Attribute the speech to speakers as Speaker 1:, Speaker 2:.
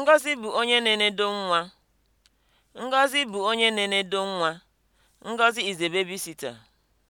Speaker 1: Ngọzị bụ onye na-enedo nwa. Ngọzị bụ onye na-enedo nwa. Ngọzị is a babysitter.